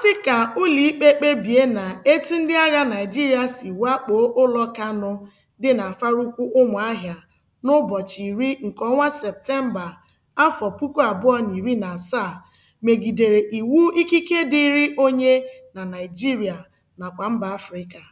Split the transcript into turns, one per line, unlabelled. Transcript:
sị ka ụlọikpe kpebie na etu ndị agha Naịjirịa si wakpo ụlọ Kanụ dị na afarukwu Ụmụahịa n'ụbọchị iri nke ọnwa Septemba, afọ puku abụọ na iri na asaa megidere iwu ikike dịịrị onye na Naịjirịa nakwa mba Afrịka.